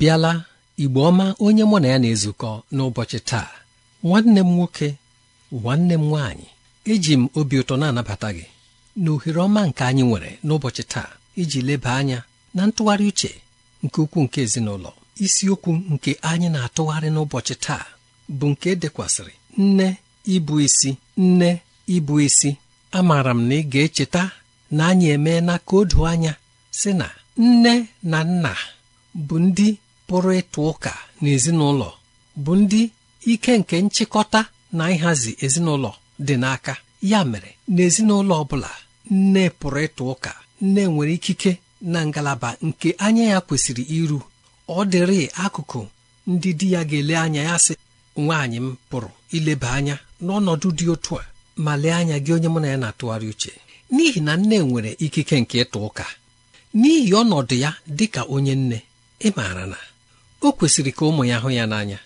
bịala igbo ọma onye mụ na ya na-ezukọ n'ụbọchị taa nwanne m nwoke nwanne m nwaanyị eji m obi ụtọ na-anabata gị na ohere ọma nke anyị nwere n'ụbọchị taa iji leba anya na ntụgharị uche nke ukwuu nke ezinụlọ isiokwu nke anyị na-atụgharị n'ụbọchị taa bụ nke e dekwasịrị nne ịbụ isi nne ịbụ isi amaara m na ị ga-echeta na anyị emeela ka o anya sị na nne na nna bụ ndị pụrụ ịtụ ụka n'ezinụlọ bụ ndị ike nke nchịkọta na ịhazi ezinụlọ dị n'aka ya mere ezinụlọ ọ bụla nne pụrụ ịtụ ụka nne nwere ikike na ngalaba nke anya ya kwesịrị iru ọ dịrị akụkụ ndị di ya ga-ele anya ya sị nwaanyị m pụrụ ileba anya n'ọnọdụ dị otu a ma lee anya gị onye mụ na ya na-atụgharị uche n'ihi na nne nwere ikike nke ịtụ ụka n'ihi ọnọdụ ya dị ka onye nne ị maara na o kwesịrị ka ụmụ ya hụ ya n'anya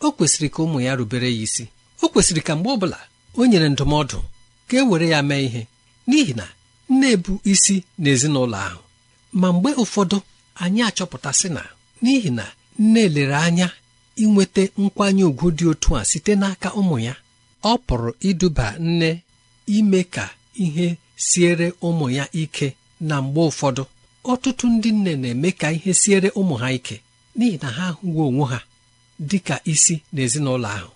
o kwesịrị ka ụmụ ya rubere ya isi o kwesịrị ka mgbe ọbụla o nyere ndụmọdụ ka e were ya mee ihe n'ihi na nne bụ isi n'ezinụlọ ahụ ma mgbe ụfọdụ anyị achọpụtasị na n'ihi na nne lere anya inweta nkwanye ùgwù dị otu a site n'aka ụmụ ya ọ pụrụ iduba nne ime ka ihe siere ụmụ ya ike na mgbe ụfọdụ ọtụtụ ndị nne na-eme ka ihe siere ụmụ ha ike n'ihi na ha hụwo onwe ha dị ka isi n'ezinụlọ ahụ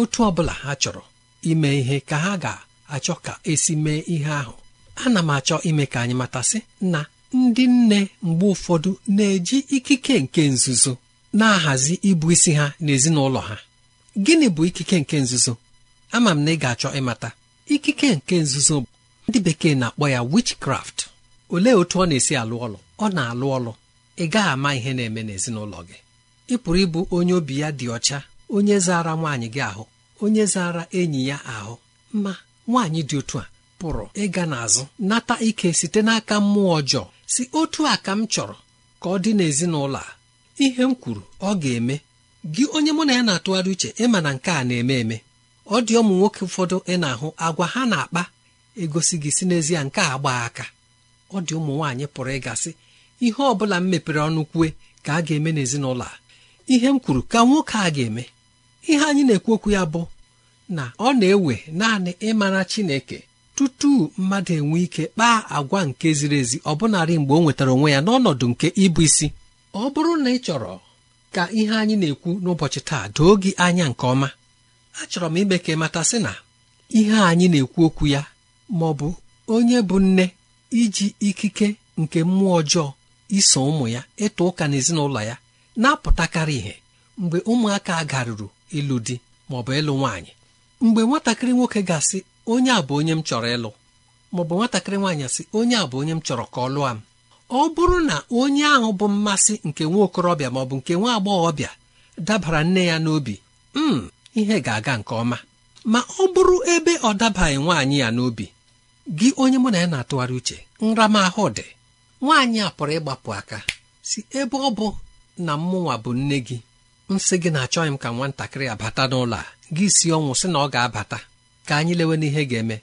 otu ọ bụla ha chọrọ ime ihe ka ha ga-achọ ka esi mee ihe ahụ ana m achọ ime ka anyị matasị na ndị nne mgbe ụfọdụ na-eji ikike nke nzuzo na-ahazi ịbụ isi ha n'ezinụlọ ha gịnị bụ ikike nke nzuzo ama m na ị ga-achọ ịmata ikike nke nzuzo ndị bekee na-akpọ ya witchcraft olee otu ọ na-esi alụ ọlụ ọ na-alụ ọlụ ị gaghị ama ihe na-eme n'ezinụlọ gị ị pụrụ ịbụ onye obi ya dị ọcha onye zara nwaanyị gị ahụ onye zara enyi ya ahụ ma nwaanyị dị otu a pụrụ ịga n'azụ nata ike site n'aka mmụọ ọjọọ si otu a ka m chọrọ ka ọ dị n'ezinụlọ a ihe m kwuru ọ ga-eme gị onye mụ na ya na-atụgharị uche ịma na nke a na-eme eme ọ dị ụmụ nwoke ụfọdụ ị na-ahụ agwa ha na-akpa egosi gị si n'ezie nke a gbaa aka ọ dị ụmụ nwaanyị pụrụ ịgasị ihe ọ bụla m mepere ọnụ kwue ka a ga-eme n'ezinụlọ a ihe m kwuru ka nwoke a ga-eme ihe anyị na-ekwu okwu ya bụ na ọ na-ewe naanị ịmara Chineke tutu mmadụ enwe ike kpaa agwa nke ziri ezi ọbụnarị mgbe ọ nwetara onwe ya n'ọnọdụ nke ịbụ isi ọ bụrụ na ị chọrọ ka ihe anyị na-ekwu n'ụbọchị taa doo gị anya nke ọma achọrọ m ime ka ị mata sị na ihe anyị na-ekwu okwu ya maọ bụ onye bụ nne iji ikike nke mmụọ ọjọọ iso ụmụ ya ịtụ ụka n'ezinụlọ ya na-apụtakarị ihe mgbe ụmụaka garuru ịlụ di ma ọ bụ ịlụ nwaanyị mgbe nwatakịrị nwoke ga-asị onye a bụ onye m chọrọ ịlụ maọbụ nwatakịrị nwaanyị asị onye a bụ onye m chọrọ ka ọ lụọ m ọ bụrụ na onye ahụ bụ mmasị nke nwa okorobịa maọbụ nke nwa agbọghọbịa dabara nne ya n'obi m hmm, ihe ga-aga nke ọma ma ọ bụrụ ebe ọ dabaghị nwaanyị ya n'obi gị onye mụ na ya na-atụgharị uche nramahụ dị nwaanyị a pụrụ ịgbapụ aka si ebe ọ bụ na mmụnwa bụ nne gị nsị gị na-achọghị m ka nwatakịrị abata n'ụlọ a gị si ọnwụ sị na ọ ga-abata ka anyị lewe n'ihe ga-eme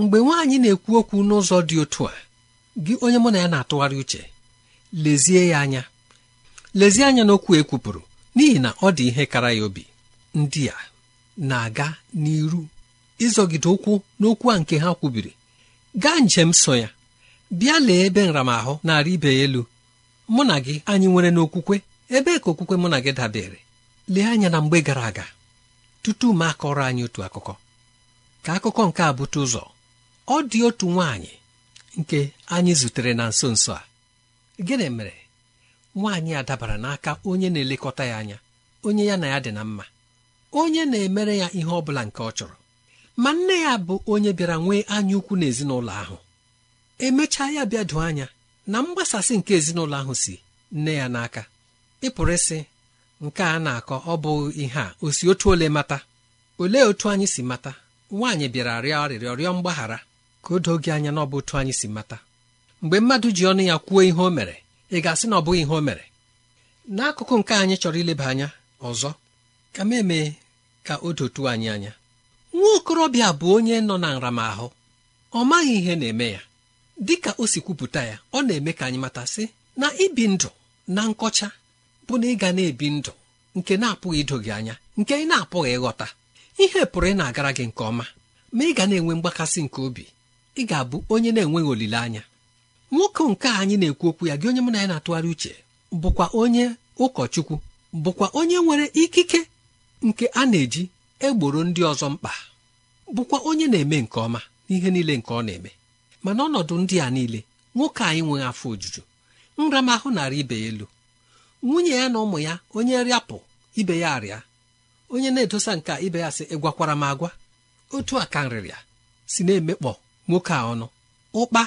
mgbe nwaanyị na-ekwu okwu n'ụzọ dị otu a gị onye mụ na ya na-atụgharị uche lezie ya anya lezie anya n'okwu ekwupụrụ n'ihi na ọ dị ihe kara ya obi ndị a na-aga n'iru ịzọgide ụkwụ n'okwu a nke ha kwubiri gaa njem so ya bịa lee ebe nramahụ narị ibe elu mụ na gị anyị nwere n'okwukwe ebe ka okwukwe mụ na gị dabere lee anya na mgbe gara aga tutu m akọrọ anyị otu akụkọ ka akụkọ nke a bute ụzọ ọ dị otu nwaanyị nke anyị zutere na nso nso a gịnị mere nwaanyị a dabara n'aka onye na-elekọta ya anya onye ya na ya dị na mma onye na-emere ya ihe ọ bụla nke ọ chọrọ ma nne ya bụ onye bịara nwee anya ukwu n'ezinụlọ ahụ emechaa ya bịa doo anya na mgbasasị nke ezinụlọ ahụ si nne ya n'aka ịpụrụ ịsị nke a na-akọ ọ bụ ihe a o si otu ole mata olee otu anyị si mata nwaanyị bịara rịọ arịrịọ rịọ mgbaghara ka o doo gị anya na ọ bụ otu anyị si mata mgbe mmadụ ji ọnụ ya kwuo ihe o mere ị ga-asị na ọ bụghị ihe o mere n'akụkụ nke anyị chọrọ ileba anya ọzọ ka m emee ka o dotuo anyị anya nwa okorobịa bụ onye nọ na nramahụ ọ maghị ihe na-eme ya dị ka o si kwupụta ya ọ na-eme ka anyị mata sị na ibi ndụ na nkọcha bụ na ịga na-ebi ndụ nke na-apụghị ido gị anya nke ị na-apụghị ịghọta ihe pụrụ ị na-agara gị nke ọma ma ị ga na-enwe mgbakasị nke obi ị ga-abụ onye na-enweghị olileanya nwoke nke anyị na-ekwu okwu ya gị onye mụ na ya na-atụgharị uche bụkwa onye ụkọchukwu bụkwa onye nwere ikike nke a na-eji egboro ndị ọzọ mkpa bụkwa onye na-eme nke ọma n'ihe niile nke ọ na-eme ma n'ọnọdụ ndị a niile nwoke anyị nweghị afọ ojuju nramahụ narị ibe ya elu nwunye ya na ụmụ ya onye rịapụ ibe ya arịa onye na-edosa nke ibe ya sị ịgwakwara m agwa otu a ka nrịrịa si na-emekpọ nwoke a ọnụ ụkpa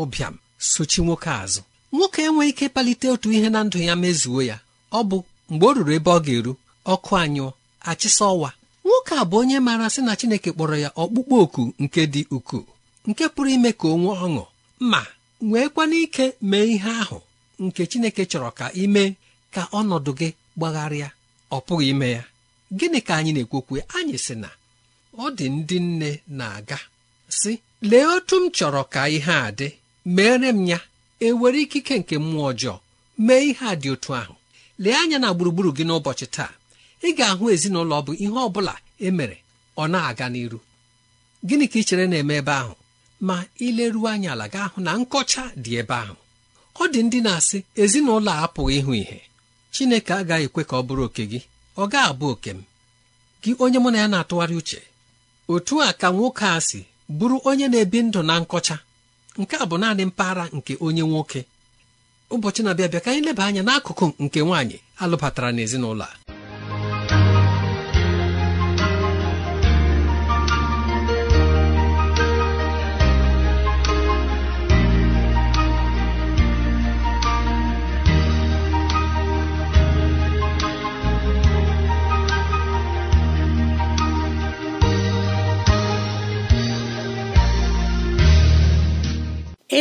ụbịam sochi nwoke azụ nwoke enweghị ike palite otu ihe na ndụ ya mezuo ya ọ bụ mgbe o ruru ebe ọ ga-eru ọkụ anyụọ achịsa ọwa nwoke a bụ onye maara sị na Chineke kpọrọ ya ọkpụkpọ oku nke dị ukwuu nke pụrụ ime ka o nwee ọṅụ ma nweekwana ike mee ihe ahụ nke Chineke chọrọ ka ime ka ọnọdụ gị gbagharịa ọ pụghị ime ya gịnị ka anyị na-ekwokwe anyị sị na ọ dị ndị nne na-aga sị lee otu m chọrọ ka ihe a dị mere m ya ewere ikike nke mmụọ ọjọọ mee ihe a dị otu ahụ lee anya na gburugburu gị n'ụbọchị taa ị ga-ahụ ezinụlọ bụ ihe ọ bụla emere ọ na-aga n'iru gịnị ka ị chere na-eme ebe ahụ ma ileruo anya ala gaa hụ na nkọcha dị ebe ahụ ọ dị ndị na-asị ezinụlọ a apụghị ịhụ ihe Chineke agaghị ekwe ka ọ bụrụ oke gị ọ gaa abụ oke m gị onye mụ na ya na-atụgharị uche otu a ka nwoke a si bụrụ onye na-ebi ndụ na nkọcha nke a bụ naanị mpaghara nke onye nwoke ụbọchị na-abịa bịa ka anyị leba anya n'akụkụ nke nwaanyị alụbatara n'ezinụlọ a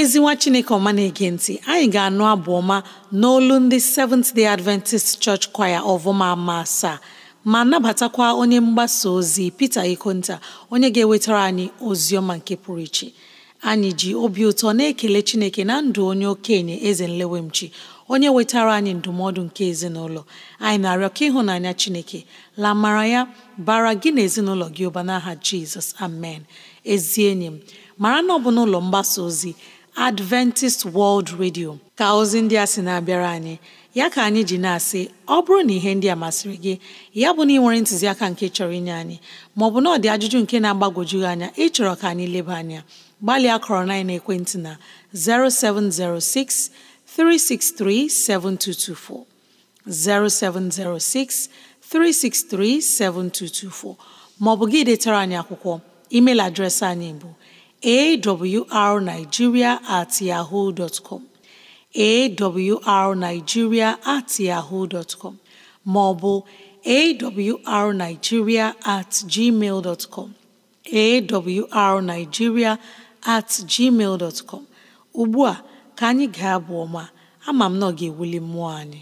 ezi nwa chineke ọma na-ege ntị anyị ga-anụ abụ ọma n'olu ndị Seventh Day Adventist Church Choir ọvụma ma asaa ma nabatakwa onye mgbasa ozi pete Ikonta onye ga-ewetara anyị ozi ọma nke pụrụ iche anyị ji obi ụtọ na-ekele chineke na ndụ onye okenye eze nlewemchi onye wetara anyị ndụmọdụ nke ezinụlọ anyị na-arịọ ka ịhụnanya chineke la ya bara gị na ezinụlọ gị ụba n'aha jizọs amen ezi enyi m mara na ọ bụ n'ụlọ mgbasa ozi Adventist World Radio ka ozi ndị a sị na-abịara anyị ya ka anyị ji na-asị ọ bụrụ na ihe ndị a masịrị gị ya bụ na ị nwere ntụziaka nke chọrọ inye anyị maọbụ na ọ dị ajụjụ nke na agbagojugị anya ịchọrọ ka anyị leba anya gbalịa kọrọ na ekwentị na 0706 363 7224 0706 363 7224 maọbụ gị detara anyị akwụkwọ email adreesị anyị bụ awrnigeria at yahoo dot com at yahoo dot com ma ọ bụ awrnigeria at gmail dot com at gmail dot com ugbu a ka anyị ga abụ ọma ama m na ọ ga-ewuli mmụọ anyị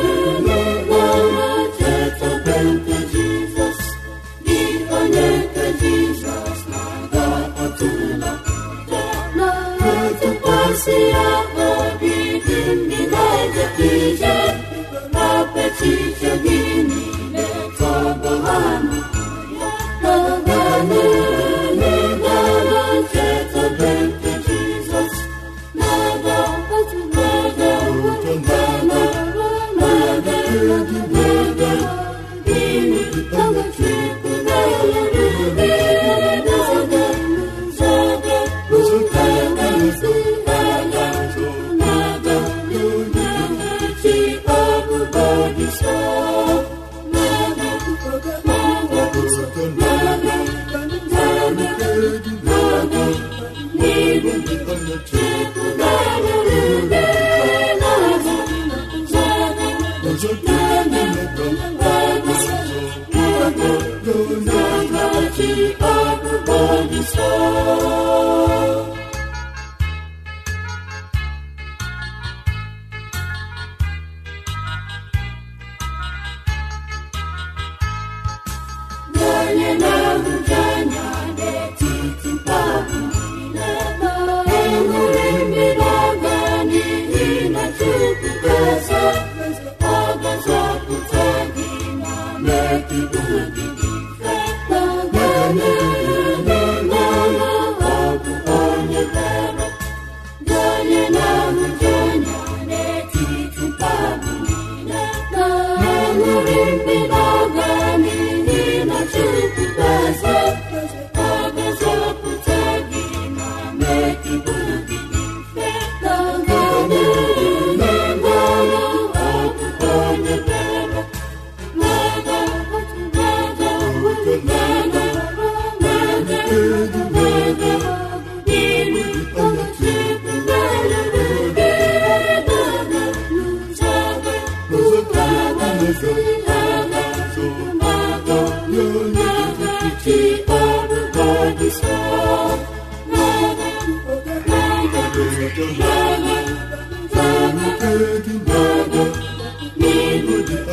Amen.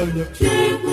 onye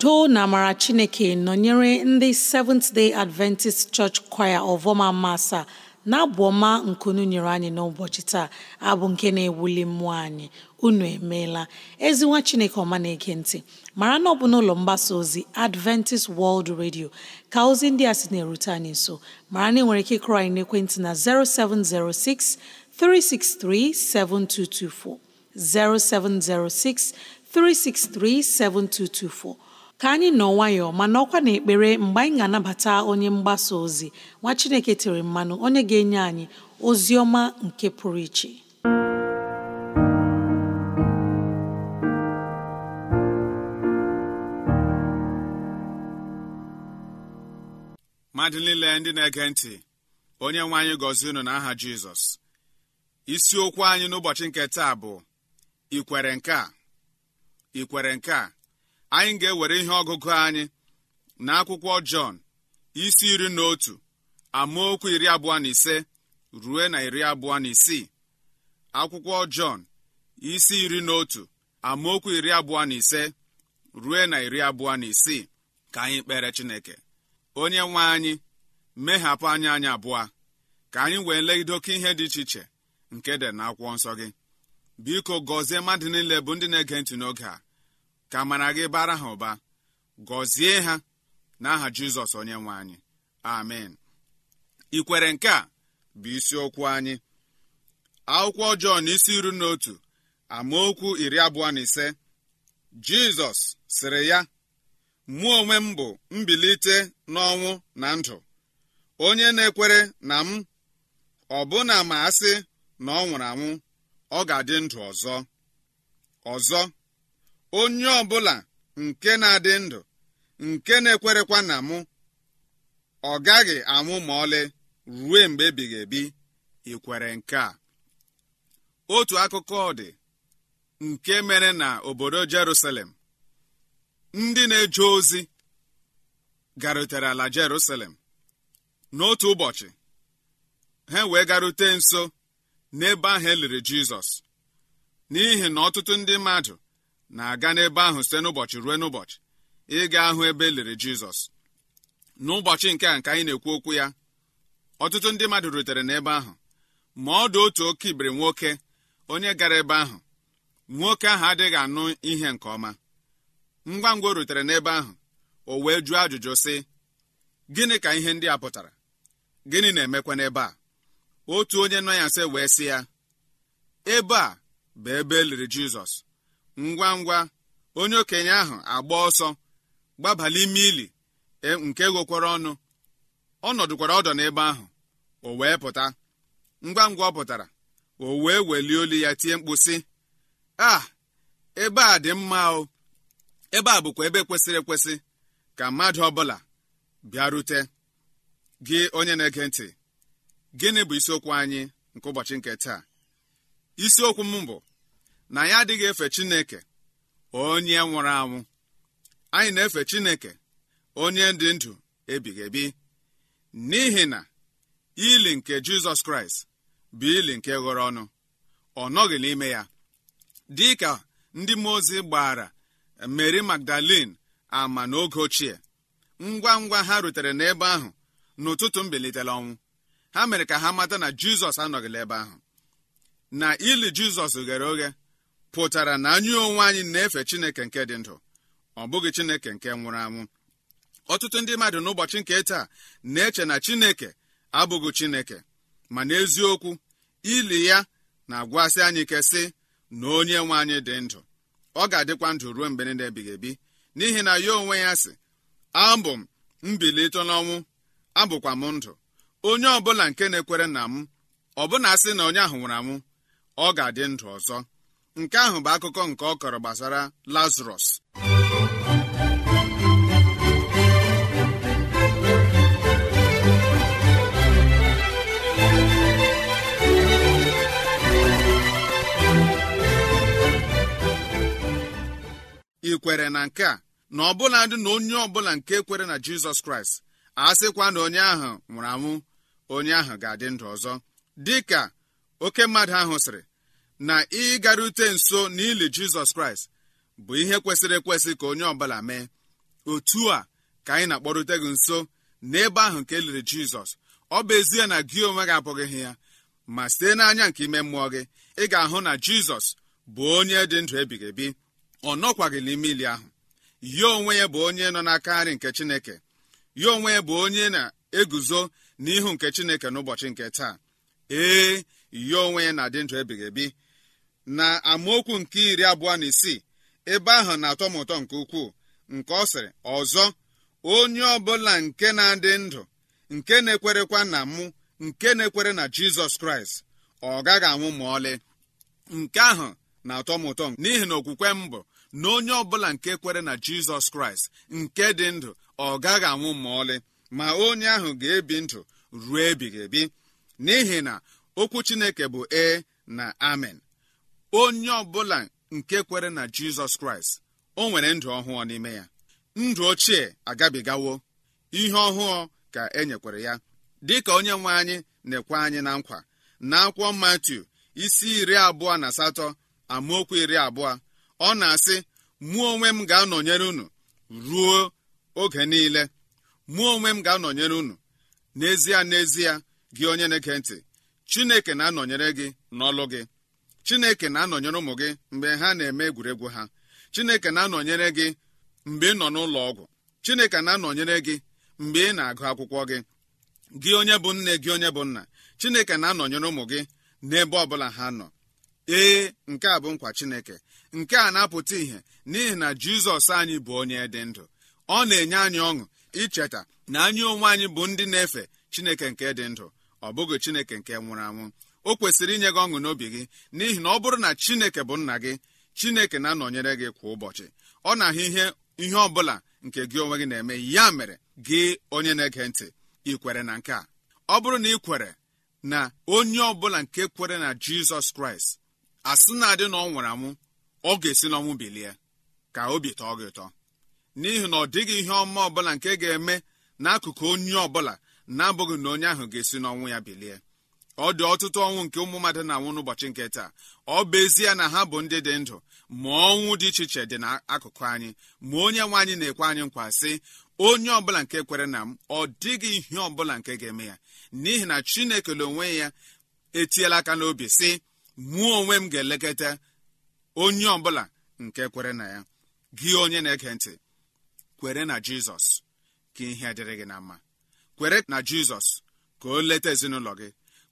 udo na amara chineke nọnyere ndị Seventh Day Adventist Church Choir ọvọma masa na-abụ ọma nkunu nyere anyị n'ụbọchị taa abụ nke na-ewuli mmụọ anyị unu emeela ezinwa chineke ọma na-ege ntị mara na ọ bụ n'ụlọ mgbasa ozi Adventist World Radio ka ozi ndị a sị na-erute anyị nso mara na ị nwere ike ịkụrọ anyị n'ekwentị na 0706 363 7224 0706 363 7224 ka anyị nọ nwayọọ ma nọkwa n'ekpere mgbe anyị ga-anabata onye mgbasa ozi nwa Chineke tere mmanụ onye ga-enye anyị ozi ọma nke pụrụ iche mmadụ niile ndị na-ege ntị onye nwe anyị gọzie unu aha Jizọs isiokwu anyị n'ụbọchị nke taa bụ ikwere nke a ikwere nke a anyị ga-ewere ihe ọgụgụ anyị na akwụkwọ jọn isi iri na otu amaokwu iri abụọ na ise rue na iri abụọ na isii akwụkwọ jọn isi iri na otu amaokwu iri abụọ na ise rue na iri abụọ na isii ka anyị kpere chineke onye nwe anyị mehapụ anya anyị abụọ ka anyị wee legide oke ihe dị iche iche nke dị na akwụkwọ nsọ gị biko gọzie mmadụ niile bụ ndị na-ege ntị n'oge a ka amara gị bara ha ụba gọzie ha n'aha jizọs onye nwe anyị amen ikwere nke a bụ isiokwu anyị akwụkwọ jọn isi iru na amaokwu iri abụọ na ise jizọs sịrị ya mụ onwe m bụ mbilite n'ọnwụ na ndụ onye na-ekwere na m ọbụna ma asị na ọ nwụrụ anwụ ọ ga-adị ndụ ọzọ ọzọ onye ọbụla nke na-adị ndụ nke na-ekwerekwa na mụ ọ gaghị anwụ ma ọlị ruo mgbe ebighị ebi ikwere nke a otu akụkọ dị nke mere na obodo Jerusalem ndị na-eje ozi garutere ala Jerusalem n'otu ụbọchị ha wee garute nso n'ebe ahụ eliri Jizọs n'ihi na ọtụtụ ndị mmadụ na-aga n'ebe ahụ site n'ụbọchị ruo n'ụbọchị ịga ahụ ebe e liri jizọs n'ụbọchị nke a nke anyị na-ekwu okwu ya ọtụtụ ndị mmadụ rutere n'ebe ahụ ma ọ dị otu oke ibiri nwoke onye gara ebe ahụ nwoke ahụ adịghị anụ ihe nke ọma ngwa ngwa o rutere n'ebe ahụ o wee jụọ ajụjụ sị gịnị ka ihe ndị a pụtara gịnị na-emekwa n'ebe a otu onye nọ ya nse wee sị ya ebe a bụ ebe e liri jizọs ngwa ngwa onye okenye ahụ agba ọsọ gbabala ime ili e, nke ghokwara ọnụ ọ nọdụkwara ọdọ n'ebe ahụ o wee pụta ngwa ngwa ọ pụtara o wee welie olu ya tie mkpu sị a ebe a dị mma o ebe a bụkwa ebe kwesịrị ekwesị ka mmadụ ọbụla bịarute gị onye na-ege ntị gịnị bụ isiokwu anyị nke ụbọchị nke taa isiokwu m bụ na ya adịghị efe chineke onye nwụrụ anwụ anyị na-efe chineke onye dị ndụ ebighị ebi n'ihi na ili nke jizọs kraịst bụ ili nke ghọrọ ọnụ ọ nọghị n'ime ya dị ka ndị mmụọ ozi gbara mary magdalene ama n'oge ochie ngwa ngwa ha rutere n'ebe ahụ n'ụtụtụ mbilitere ọnwụ ha mere ka ha mata na jizọs anọghịla ebe ahụ na ili jizọs ghere oghe pụtara na anyị onwe anyị na-efe chineke nke dị ndụ ọ bụghị chineke nke nwụrụ anwụ ọtụtụ ndị mmadụ n'ụbọchị nke taa na-eche na chineke abụghị chineke ma n'eziokwu ili ya na-agwasị anyị ike sị na onye nwe anyị dị ndụ ọ ga-adịkwa ndụ ruo mgbe niile ebighị ebi n'ihi na ya onwe ya sị abụ m mbilite n'ọnwụ abụkwa m ndụ onye ọbụla nke na-ekwere na m ọbụna sị na onye ahụ nwụrụ anwụ ọ ga-adị ndụ ọzọ nke ahụ bụ akụkọ nke ọ kọrọ gbasara "Lazarus" ị kwere na nke a na ọ bụla ndị na onye ọbụla nke kwere na jizọs kraịst a sịkwa na onye ahụ nwụrụ anwụ onye ahụ ga-adị ndụ ọzọ dị ka oke mmadụ ahụ sịrị na ịgarute nso n'ili jizọs kraịst bụ ihe kwesịrị ekwesị ka onye ọbụla mee otu a ka anyị na-akpọrute gị nso n'ebe ahụ nke liri jizọs ọ bụ ezie na gị onwe gị abụghị ya ma site n'anya nke ime mmụọ gị ị ga-ahụ na jizọs bụ onye dị ndụ ebighị ebi ọ nọkwaghị n'ime ili ahụ ya onwe ya bụ onye nọ n'aka nri nke chineke ya onwe ya bụ onye na-eguzo n'ihu nke chineke n'ụbọchị nke taa ee ya onwe ya na-adị ndụ ebighị ebi na amaokwu nke iri abụọ na isii ebe ahụ na-atọ ụtọ nke ukwuu nke ọ sịrị ọzọ onye ọbụla nke na-adị ndụ nke na-ekwerekwa na mụ nke na-ekwere na jizọs kraịst ọ gaghị anwụ ma ọlị nke ahụ na-atọ m ụtọ n'ihi na okwukwe m bụ na onye ọbụla nke kwere na jizọs kraịst nke dị ndụ ọ gaghị anwụ ma ọlị ma onye ahụ ga-ebi ndụ ruo ebighị ebi n'ihi na okwu chineke bụ ee na amen onye ọbụla nke kwere na jizọs kraịst o nwere ndụ ọhụụ n'ime ya ndụ ochie agabigawo ihe ọhụụ ka e nyekwere ya dịka onye nwe anyị na-ekwe anyị na nkwa na akwụkwọ matiu isi iri abụọ na asatọ amaokwu iri abụọ ọ na-asị mụ onwe m ga-anọnyere unu ruo oge niile mụọ onwe m ga-anọnyere unu n'ezie n'ezie gị onye na-ege ntị chineke na-anọnyere gị n'ọlụ gị chineke na-anọnyere ụmụ gị mgbe ha na-eme egwuregwu ha chineke na-anọnyere gị mgbe ị nọ n'ụlọ ọgwụ chineke na-anọnyere gị mgbe ị na-agụ akwụkwọ gị gị onye bụ nne gị onye bụ nna chineke na-anọnyere ụmụ gị n'ebe ọ bụla ha nọ ee nke a bụ nkwa chineke nke a na-apụta ìhè n'ihi na jizọs anyị bụ onye dị ndụ ọ na-enye anyị ọṅụ icheta na anyị onwe anyị bụ ndị na-efe chineke nke dị ndụ ọ bụghị chineke nke nwụrụ anwụ o kwesịrị inye gị ọṅụ n'obi gị n'ihi na ọ bụrụ na chineke bụ nna gị chineke na-anọnyere gị kwa ụbọchị ọ na-ahụ ihe ihe ọ bụla nke gị onwe gị na-eme ya mere gị onye na-ege ntị ị kwere na nke a ọ bụrụ na ị kwere na onye ọ bụla nke kwere na jizọs kraịst asị na-adị na ọ nwụrụ anwụ ọ ga-esi n'ọnwụ bilie ka obi tọọ gị ụtọ n'ihi na ọ dịghị ihe ọma ọbụla nke ga-eme n'akụkụ onye ọbụla na-abụghị na onye ahụ ga-esi n'ọnwụ ya bilie ọ dị ọtụtụ ọnwụ nke ụmụ mmadụ na-anwụ n'ụbọchị nke taa ọ bụ ezie na ha bụ ndị dị ndụ ma ọnwụ dị iche iche dị n'akụkụ anyị ma onye nwe anyị na-ekwe anyị nkwa sị onye ọbụla nke kwere na m ọ dịghị ihe ọbụla nke ga-eme ya n'ihi na chineke na onwe ya etiela aka n'obi sị mụọ onwe m ga-elekọta onye ọbụla nke kwere na ya gị onye na-ege ntị kwere na jizọs ka ihe dịrị gị na mma kwere na jizọs ka o leta ezinụlọ gị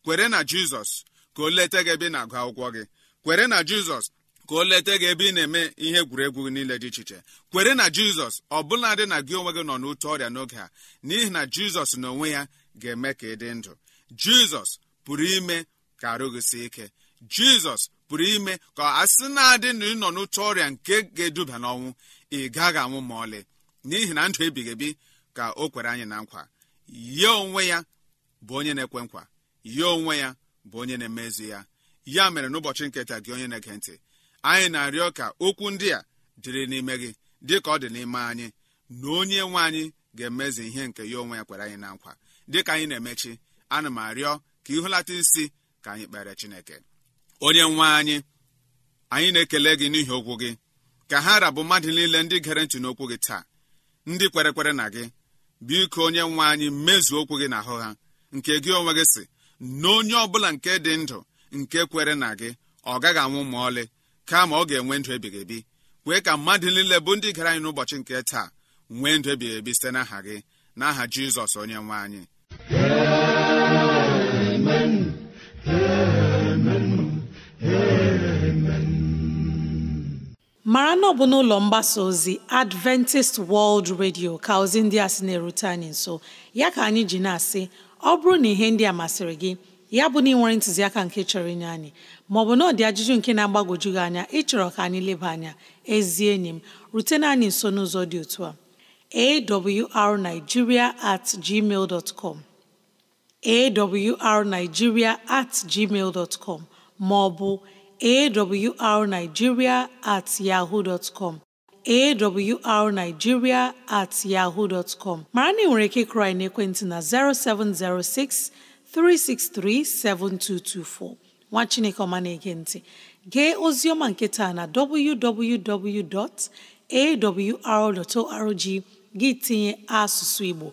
kwere na jizọs ka o leta gị ebe ị na-agụ akwụkwọ gị kwere na jizọs ka o leta gị ebe ị na-eme ihe egwuregwu niile dị iche iche kwere na jizọs ọ bụla na gị onwe gị nọ n'otu ọrịa n'oge a n'ihi na jizọs na onwe ya ga-eme ka ị dị ndụ jizọs pụrụ ime ka arụ gị sie ike jizọs pụrụ ime ka asị na-adị na ịnọ n'otu ọrịa nke ga-eduba n'ọnwụ ị gaghị anwụ ma ọlị n'ihi na ndụ ebighị ebi ka o kwere anyị na nkwa ya onwe ya bụ onye na-ekwe nkwa ya onwe ya bụ onye na-emezi ya ya mere n'ụbọchị nketa gị onye na-ege ntị anyị na-arịọ ka okwu ndị a dịrị n'ime gị dị ka ọ dị n'ime anyị na onye nwe anyị ga-emezi ihe nke ya onwe ya kwere anyị na nkwa dịka anyị na-emechi ana m arịọ ka ịhụlata isi ka anyị kpere chineke onye nwe anyị anyị na-ekele gị n'ihi okwu gị ka ha rabụ mmadụ niile ndị gere ntị n'okwu gị taa ndị kwere kwere na gị biko onye nwe anyị mezuo okwu gị ahụ ha nke gị onwe gị si na onye ọbụla nke dị ndụ nke kwere na gị ọ gaghị anwụ ma ọlị kama ọ ga-enwe ndụ ebighị ebi kwee ka mmadụ niile bụ ndị gara anyị n'ụbọchị nke taa nwee ndụ ebighị ebi site n'aha gị n'aha jizọs onye nwe anyị mara na ọ bụ n'ụlọ mgbasa ozi adventist world radio ka ozi ndị a sị na-erute anyị nso ya ka anyị ji na-asị ọ bụrụ na ihe ndị a masịrị gị ya bụ na ị ntụziaka nke chọrọ inye anyị maọbụ na ọ dị ajụjụ nke na-agbagwoju gị anya ịchọrọ ka anyị leba anya ezi enyi m rutena anyị nso n'ụzọ dị otu a awrnigeria at gmail dot com awrnigeria at gmail dot com maọbụ awrnigeria at yahoo dot arnigiria at yaho com mara na ị nwere ike ịkụrụ anyị n'ekwentị na 0706 363 7224 nwa Chineke ọma na ntị gee ozi ọma nke taa na www.awr.org gị tinye asụsụ Igbo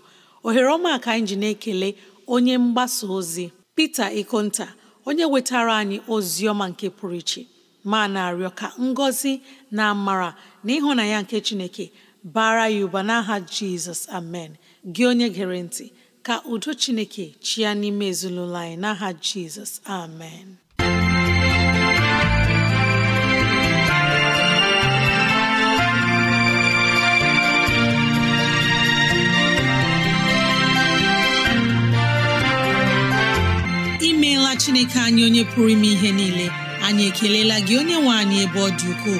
ohere ọma ka anyị ji na-ekele onye mgbasa ozi Peter Ikonta onye wetara anyị ozi ọma nke pụrụ iche ma na-arịọ ka ngọzi na amara na ya nke Chineke bara ya ụba n'aha Jizọs amen gị onye gere ntị ka udo Chineke chịa n'ime ezinụlọ anyị n'aha Jizọs amen imeela Chineke anyị onye pụrụ ime ihe niile anyị ekelela gị onye nwe anyị ebe ọ dị ukwuu